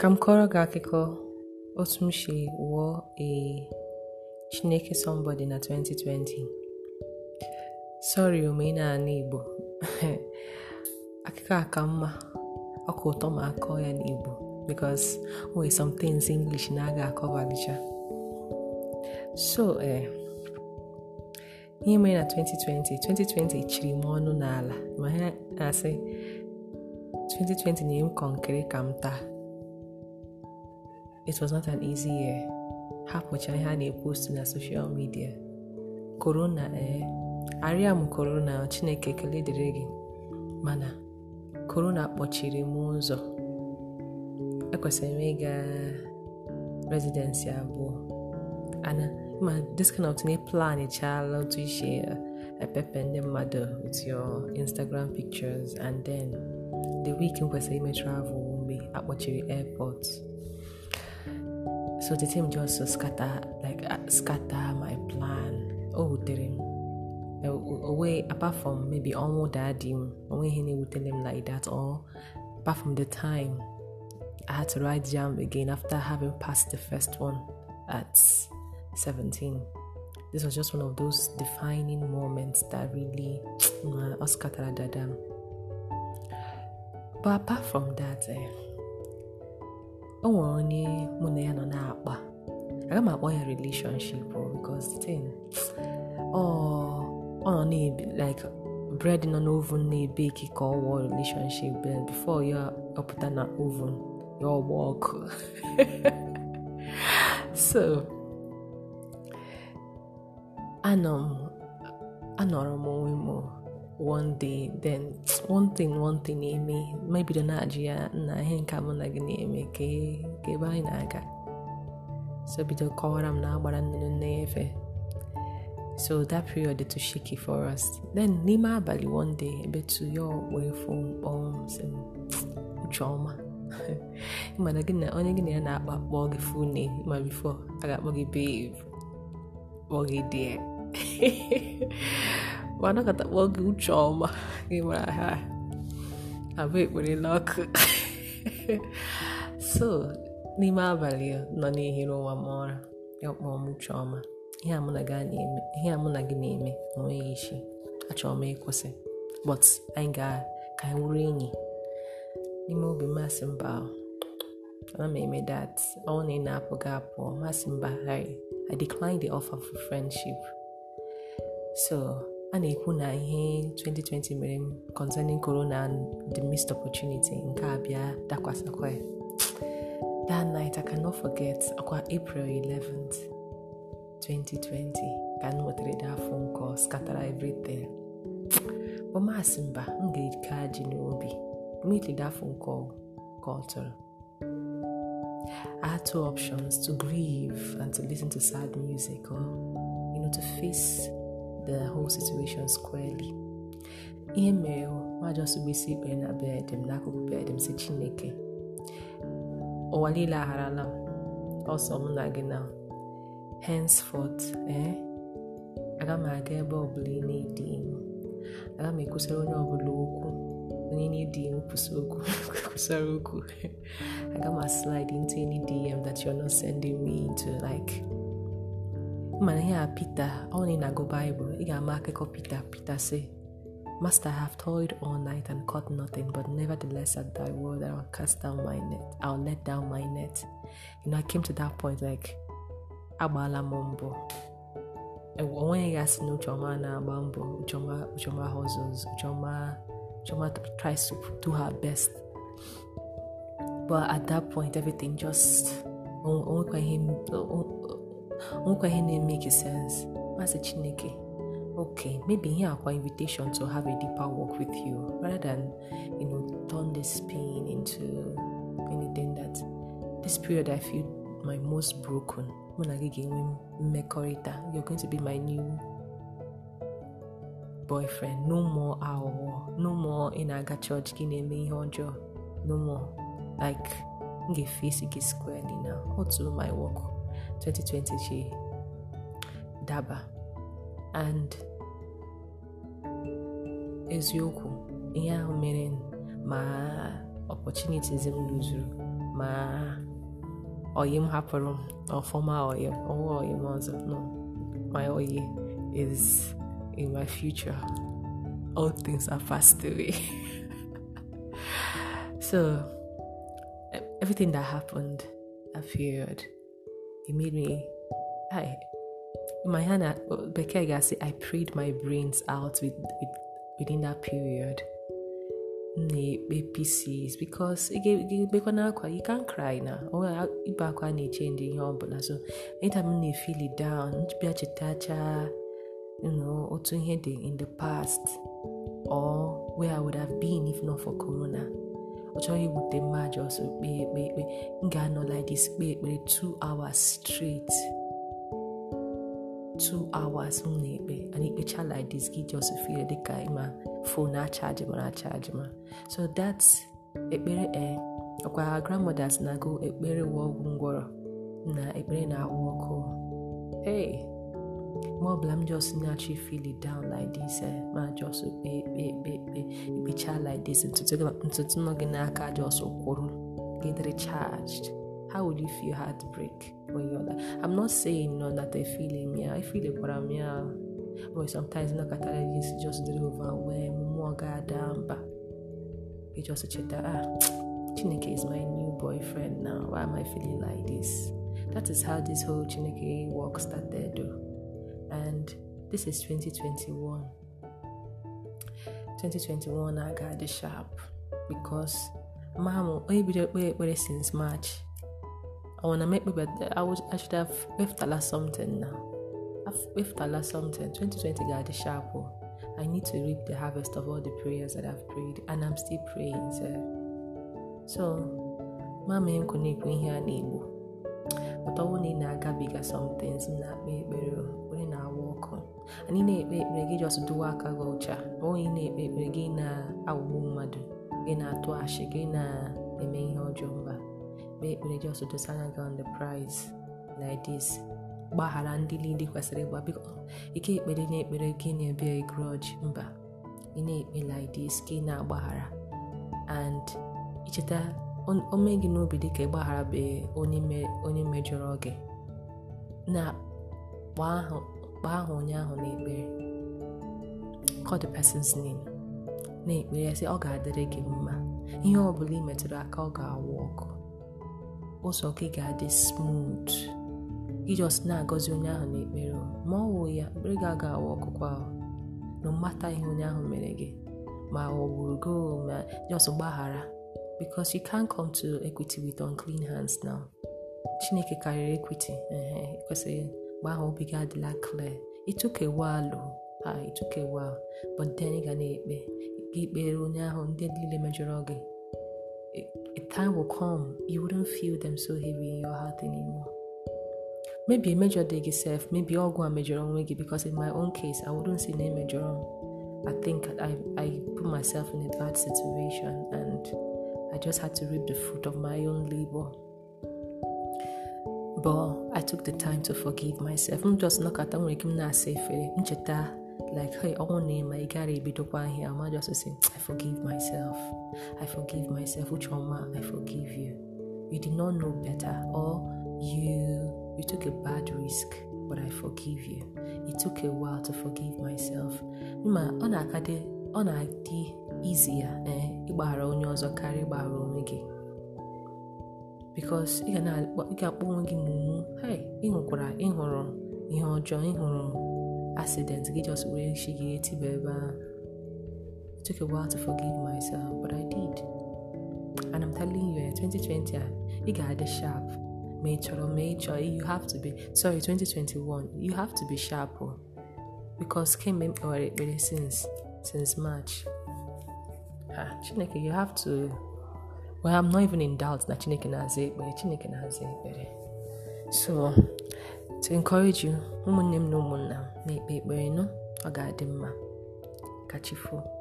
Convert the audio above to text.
ka m kọrọ gị akụkọ otu m si wụọ ee Chineke somebody na 2020 sorry omenala Igbo akụkọ a ka mma ọkụ ụtọ ma akọ ya n'Igbo because o some things English na-aga akọbalicha so ee eh, ihe mere na 2020 2020 chiri m ọnụ n'ala ma ha na-asị 2020 na-enye m kọnkịrị ka m taa It was not an easy year. Hapụcha ihe a na-epostu na soshal media corona ee, eh? m korona Chineke ekele dịrị gị mana corona kpọchiri m ụzọ. Ekwesịrị m ịga rezidensi abụọ. Ana ma this kind of thing plan echala otu ishe eh, epepe ndị mmadụ with your Instagram pictures and then the week m kwesịrị ime travel mgbe akpọchiri airport. So the team just scatter like uh, scatter my plan. Oh, dịrị Away uh, uh, apart from maybe ọnwụ daddy m, onwe ihe na-ewutere like that or apart from the time I had to write jam again after having passed the first one at 17. This was just one of those defining moments that really Oscar Dada. But apart from that, eh, o nwere onye mụ na ya nọ na-akpa aga m akpọ ya relationship oh, because thing ọ nọ like bread nọ n'ovun na-ebeki ka ọ wụọ relationship be before ya ọpụta na oven ya ọgba ọkụ so anọrọ m onwe m oh. one day then one thing one thing na-eme ma bido na-ajụ ya na ihe nke mụ na gị na-eme ka ebe anyị na-aga so bido kọwara m na agbara nnụnụ nne efe so that period dị too shaky for us then n'ime abalị one day ebe tu ya wee fụ mkpọm sị ucheọma mana gị na onye gị na ya na-akpa kpọọ gị fu name ma bifo a ga-akpọ gị babe kpọọ gị anakọtakwa oge uche ọma gị mara ha abụ ekpere so n'ime abalị nọ n'ehiri ụwa m ọra ya m ọma ihe a mụ na gị na-eme enweghị isi achọrọ ọma ịkwụsị but anyị ga-ka enyi n'ime obi masị mba ana m eme dat na-apụ gị apụọ masị mba I declined the offer for friendship a na-ekwu na ihe 2020 mere m concerning corona and the missed opportunity nke a bịa dakwasakwa ya that night I cannot forget akwa April 11th 2020 ka m nwetara that phone call scatara everything ọmasị mba m ga-eke ajị n'obi immediately that phone call call tụrụ I had two options to grieve and to listen to sad music or you know to face the whole situation squarely ihe mere nwaji ọsụgbisi ikpe na bed m n'akụkụ bed m si chineke ụwa niile agharala m ọsọ mụ na gị na henceforth eh aga m aga ebe ọbụla ị na-edi iwu aga m ekwusara onye ọbụla okwu onye na-edi iwu kwusara okwu aga m slide into any DM that you're not sending me into like mana ihe a Pita ọ na go bible Baịbụl ị ga-ama akụkọ Pita Pita say Master, I have toiled all night and caught nothing, but nevertheless at thy word I will cast down my net. I'll let down my net. You know, I came to that point like agbala m mbọ onweghị gasị na Uchoma na-agba mbọ Uchoma Uchoma hustles Uchoma Uchoma tries to do her best but at that point everything just onwekwa oh, ihe oh, oh, nwekwa ihe na-emeke sense masị chineke ok maybe ihe akwa invitation to have a deeper work with you rather than you know turn this pain into anything that this period i feel my most broken mụ na gị ga-enwe mmekọrịta you're going to be my new boyfriend no more aghụghọ no more ị na-aga chọọchị gị na-eme ihe ọjọọ no more like m ga-efesi gị squarely na otu my work 2020 she daba and eziokwu ihe ahụ mere ma opportunities m lụzuru ma oyim hapụrụ m ọfọma oyim ọwa oyim ọzọ no my oyi is in my future all things are passed away so everything that happened appeared. period me I, my Hannah, Becky I prayed my brains out with, with within that period. na pcs because akwa you can cry na ibe akwa na-eche ihe ọbụla so efili down otu ihe in the past or where I would have been if not for corona ọ chọghị iwute mma ọsọ kpee ekpe ekpe m ga-anọ like this kpee ekpere 2 hours straight 2 hours m na-ekpe and ikpecha like this gị just feel dịka ịma fon achaji mara achaji ma so that ekpere e ọkwa grandmothers na-agụ ekpere wụ ngwọrọ na ekpere na-awụ ọkụ hey mgbe ọbụla m just naturally feel it down like this eh? ma just kpe ekpe ekpe ekpe ikpecha like this ntutu nọ gị n'aka just kwụrụ get recharged how would you feel heartbreak when you're like i'm not saying no that i feel him yeah i feel kwara m ya but sometimes nakọtara this just dey overwhelm mmụọ ga-ada mba you just cheta ah chineke is my new boyfriend now why am i feeling like this that is how this whole chineke work started though. and this is 2021. 2021 I got the sharp because mom ekpere since March. I wanna make my birthday. I was I should have left something now. I've left something. 2020 got the sharp. Oh. I need to reap the harvest of all the prayers that I've prayed, and I'm still praying. Sir. So, mama ain't ihe go here but ọ na ị na-agabiga somethings na-akpa ekpere onye na-awa ọkụ anyị na-ekpe ekpere gị just dowe aka gị ọcha ma onye na-ekpe ekpere gị na-aghọgbu mmadụ gị na-atụ ashị gị na-eme ihe ọjọọ mba kpee ekpere just dosa anya gị on the prize like gbaghara ndị niile kwesịrị ịgba biko ike ekpere na-ekpere gị na-ebia grudge mba ị na-ekpe like gị na-agbaghara and icheta o mee gị n'obi dịka ịgbagharabeghị onye mejọrọ gị na kpaa ahụ onye ahụ n'ekpere call the person's name na-ekpere sị ọ ga-adịrị gị mma ihe ọ bụla ị metụrụ aka ọ ga-awụ ọkụ ụzọ gị ga-adị smooth ijọs na-agọzi onye ahụ n'ekpere ma ọ wụ ya ekpere gị ga-awụ ọkụkwa ahụ na mmata ihe onye ahụ mere gị ma ọ gburu gị ma jos gbaghara because you can't come to equity with unclean hands now chineke karịrị equity ekwesịghị mgbe ahụ obi gị adịla clear ịtụkewalụ ha ịtụkewa but then ị ga na-ekpe gị kpere onye ahụ ndị niile mejọrọ gị a eh, eh, time will come you wouldn't feel them so heavy in your heart anymore maybe major gị sef maybe ọgwụ a mejọrọ onwe gị because in my own case I wouldn't say name emejọrọ m I think I, I put myself in a bad situation and I just had to reap the fruit of my own labor. But I took the time to forgive myself. M just nọkọta at ike m na-asa like hey ọnwụ na ịma ị gara ebidokwa ahịa ama just say I forgive myself. I forgive myself. Uchoma, I forgive you. You did not know better or you you took a bad risk but I forgive you. It took a while to forgive myself. Ma ọ na-akadị izi ya ee eh, ịgbaghara onye ọzọ karịa ịgbaghara onwe gị bikos ị ga akpọ onwe gị mumu ịhụkwara ịhụrụ ihe ọjọọ ịhụrụ accident gị just were shi gị etiba ebe it took a while to forgive myself but I did and I'm telling you 2020 eh, a ị ga-adị sharp ma ị chọrọ ma ị chọọ you have to be sorry 2021 you have to be sharp oh. because kemgbe m kpewara ekpere since since March ah chineke you have to well i'm not even in doubt that chineke na-aza ekpere chineke na-aza ekpere so to encourage you ụmụnne m na ụmụnna m na-ekpe ekpere nụ ọ ga-adị mma kachifu.